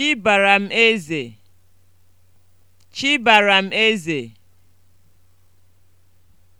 Chibaram m eze! Chi m eze!